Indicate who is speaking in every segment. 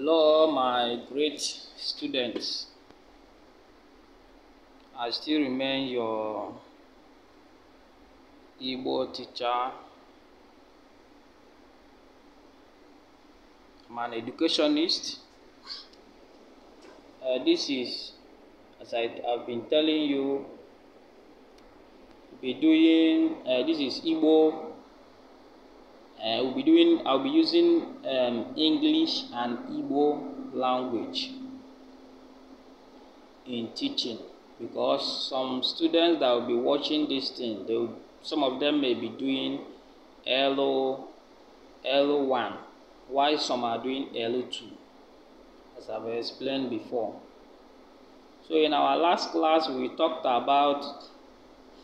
Speaker 1: Hello, my great students. I still remain your Igbo teacher. I'm an educationist. Uh, this is, as I, have been telling you, be doing, uh, this is Igbo Uh, we'll be doing, I'll be using um, English and Igbo language in teaching because some students that will be watching this thing, they some of them may be doing LO, LO1, while some are doing LO2, as I've explained before. So in our last class, we talked about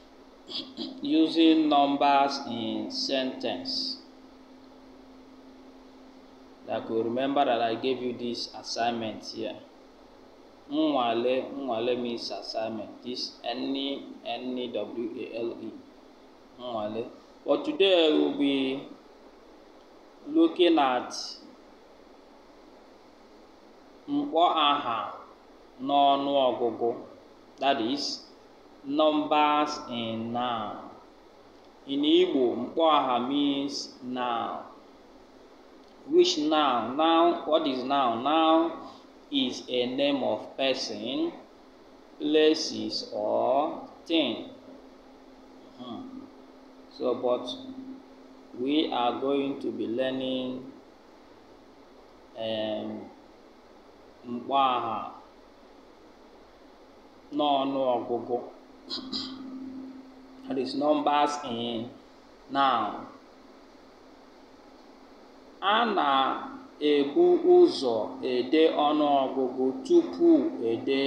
Speaker 1: using numbers in sentence. I could remember that I gave you this assignment here. Nwale, Nwale means assignment. This n e n e w a l e Nwale. But today we'll be looking at mkpọ aha n'ọnụ ọgụgụ that is numbers in noun. In Igbo, mkpọ aha means noun. Which now, now what is now? Now is a name of person, places, or thing. Hmm. So, but we are going to be learning um, mkpaha n'ọnụ ọgụgụ. That is numbers in noun a na-ebu ụzọ ede ọnụọgụgụ tupu ede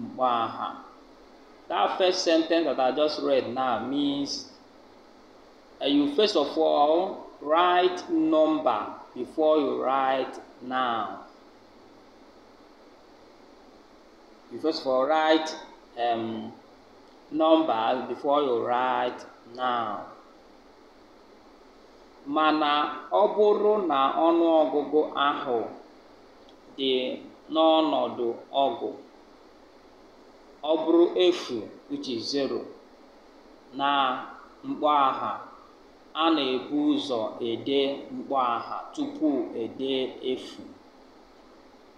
Speaker 1: mkpọaha. That first sentence that I just read now means uh, you first of all write number before you write noun. You first of all write um, number before you write noun. mana ọ bụrụ na ọnụọgụgụ ahụ dị n'ọnọdụ ọgụ ọ bụrụ efu zero na mkpaagha a na-ebu ụzọ ede mkpaagha tupu ede efu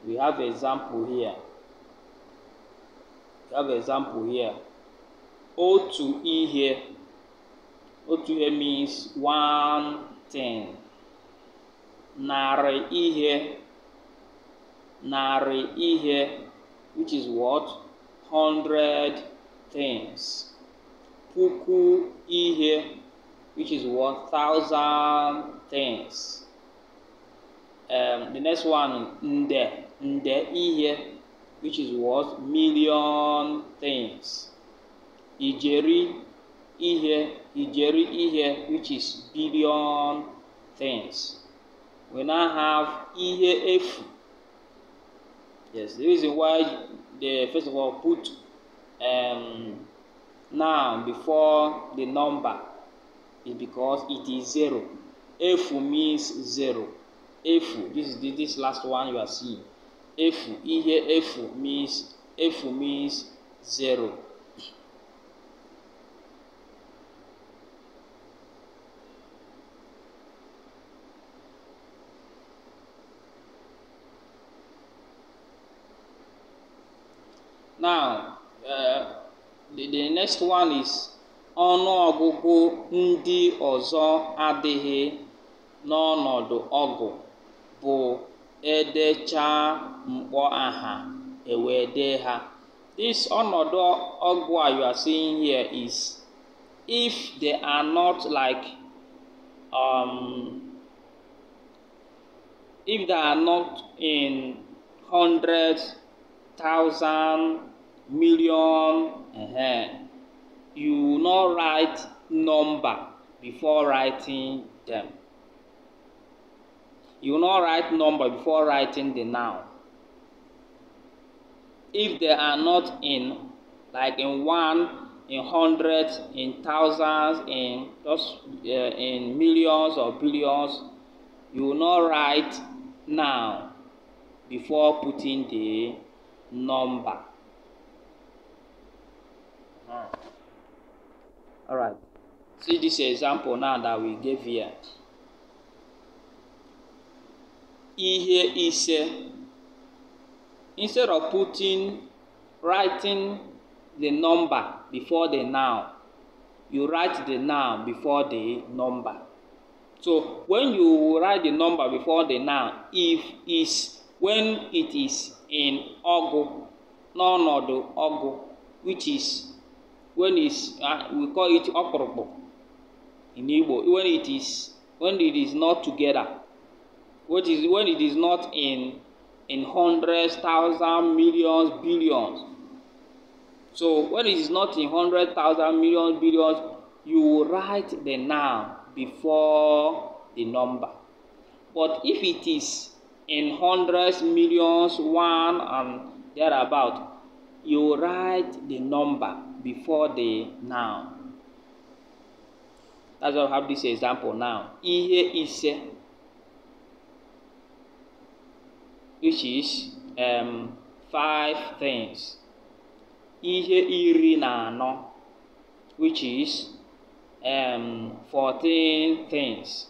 Speaker 1: (we have example here: "otu ihe" means one. Ten, nare ihe nare ihe which is what hundred things puku ihe which is what thousand things um, the next one nde nde ihe which is what million things ijeri ihe, ijeri ihe, which is billion things. We now have ihe efu. Yes, the reason why they first of all put um, now before the number is because it is zero. Efu means zero. Efu, this is this last one you are seeing. Efu, ihe efu means efu means zero. Now, uh, the, the next one is ọgụgụ ndị ọzọ adịghị n'ọnọdụ ọgụ bụ edechaa mkpọ aha ewee dee ha. This ọnọdụ ọgụ a you are seeing here is if they are not like um, if they are not in hundreds thousand, million, uh-huh. you will not write number before writing them. You will not write number before writing the noun. If they are not in, like in one, in hundreds, in thousands, in just uh, in millions or billions, you will not write now before putting the number. Uh -huh. All right. See this example now that we gave here. Here is instead of putting writing the number before the noun, you write the noun before the number. So when you write the number before the noun, if is when it is in ogu n'ọnọdụ ogu which is when is uh, we call it ọkpụrụkpụ in Igbo when it is when it is not together what is when it is not in in hundreds thousand millions billions so when it is not in hundred thousand millions billions you will write the noun before the number but if it is in hundreds, millions, one and thereabout. You write the number before the noun. That's why I have this example now. Ihe ise, which is um, five things. Ihe iri na which is um, fourteen things.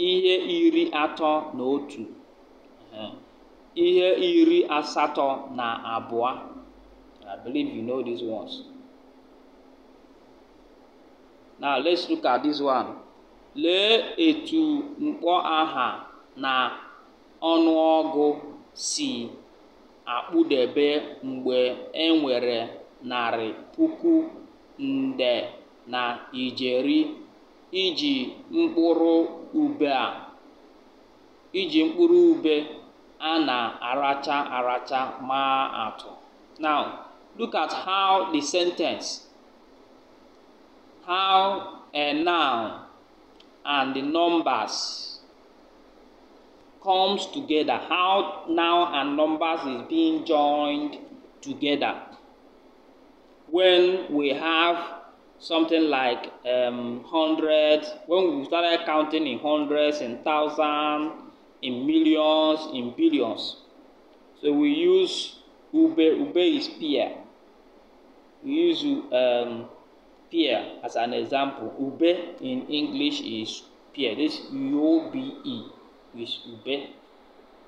Speaker 1: ihe iri atọ na otu ihe iri asatọ na abụọ I believe you know these ones. Now let's look at this one. Lee etu mkpọ aha na ọnụọgụ si akpụdebe mgbe e nwere narị puku nde na ijeri iji mkpụrụ ube a iji mkpụrụ ube a na-aracha aracha maa atụ. Now, look at how the sentence how a noun and the numbers comes together how noun and numbers is being joined together when we have something like um, hundred. When we started counting in hundreds, in thousands, in millions, in billions. So we use Ube. Ube is peer. We use um, peer as an example. Ube in English is peer. This U-O-B-E is Ube.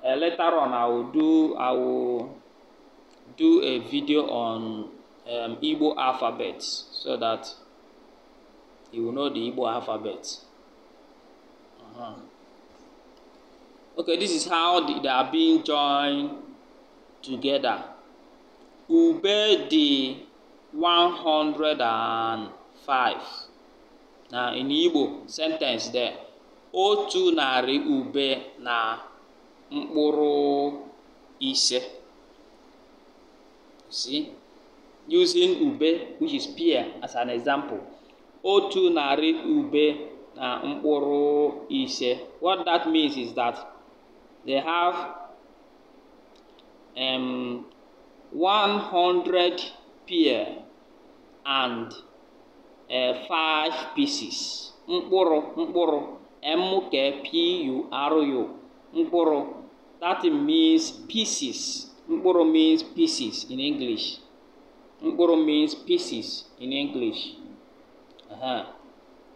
Speaker 1: Uh, later on, I will do I will do a video on um, Igbo alphabets so that he will know the Igbo alphabet. Uh -huh. Okay, this is how they are being joined together. Ube the 105. Now in Igbo sentence there. Otu nari ube na mkpụrụ ise. See? Using ube, which is pear, as an example. otu narị ube na mkpụrụ ise what that means is that they have um, 100 pear and uh, five pieces mkpụrụ mkpụrụ m-k-p-u-r-u mkpụrụ that means pieces mkpụrụ means pieces in English mkpụrụ means pieces in English Uh-huh.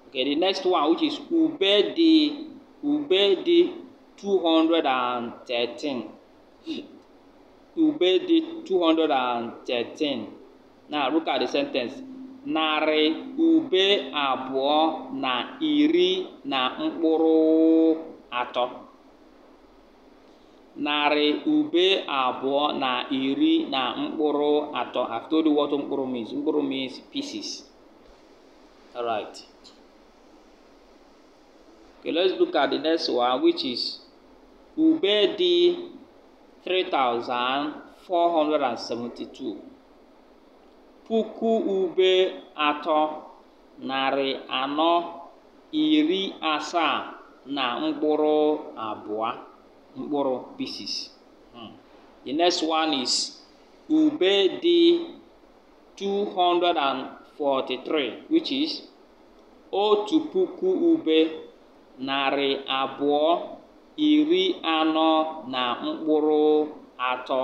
Speaker 1: Okay, the next one which is ube Ubedi, Ubedi 213. Ubedi 213. Now look at the sentence. Narị ube abụọ na iri na mkpụrụ atọ. narị ube abụọ na iri na mkpụrụ atọ. I've told you what mkpụrụ means. Mkpụrụ means pieces. All right. Okay, let's look at the next one, which is Ubedi 3472. Puku ube ato narị anọ iri asaa na mkpụrụ abụọ mkpụrụ pieces. Hmm. The next one is ube dị 200 43 which is otu puku ube narị abụọ iri anọ na mkpụrụ atọ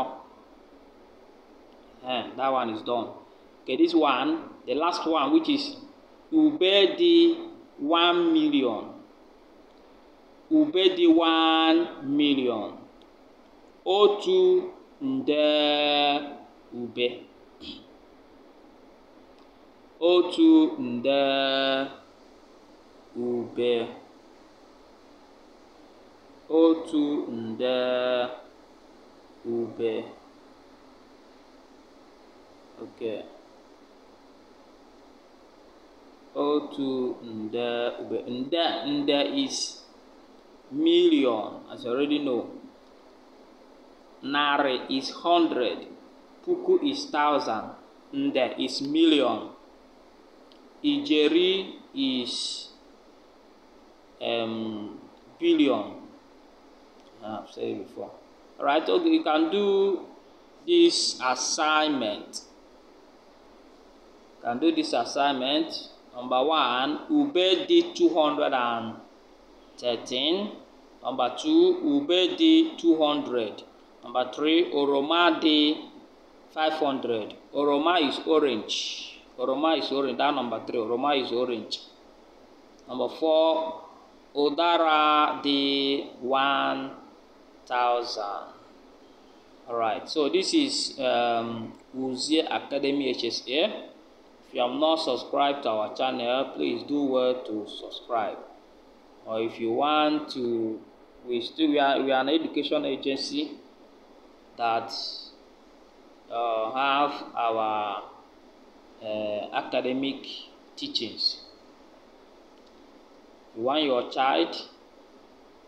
Speaker 1: eh, that one is done okay this one the last one which is ube dị 1 million ube dị 1 million otu nde ube otu nde ube otu nde ube okay O2 nda ube nde nda is million as you already know Nare is hundred. Puku is thousand. Nde is million. Ijeri is um, billion. Ah, I've said it before. All right, okay, you can do this assignment. You can do this assignment. Number one, Ube did 213. Number two, Ube did 200. Number three, Oroma did 500. Oroma is orange. Oroma is orange. That number three. Oroma is orange. Number four. Odara the one thousand. All right. so this is um, Uzie Academy HSA. If you have not subscribed to our channel, please do well to subscribe. Or if you want to, we still we are, we are an education agency that uh, have our uh, academic teachings. You want your child,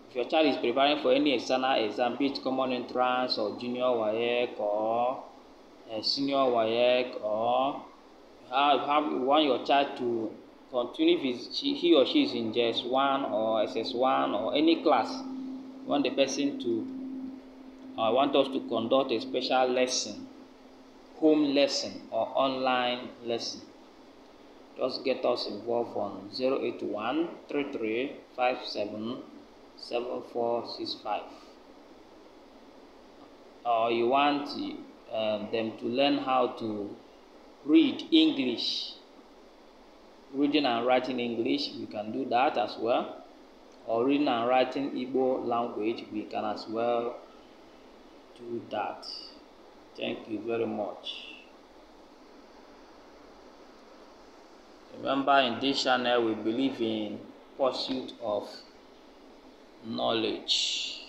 Speaker 1: if your child is preparing for any external exam, be it common entrance or junior WAEC or uh, senior WAEC or have, have, you want your child to continue if he or she is in JS1 or SS1 or any class, you want the person to, I uh, want us to conduct a special lesson home lesson or online lesson. Just get us involved on 081 7465 or you want um, them to learn how to read English, reading and writing English, we can do that as well. Or reading and writing Igbo language, we can as well do that. Thank you very much. Remember, in this channel, we believe in pursuit of knowledge.